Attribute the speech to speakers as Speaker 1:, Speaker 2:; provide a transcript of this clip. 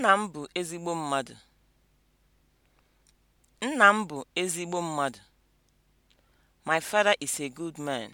Speaker 1: Nna m bụ ezigbo mmadụ. Nna m bụ ezigbo mmadụ. My father is a good man.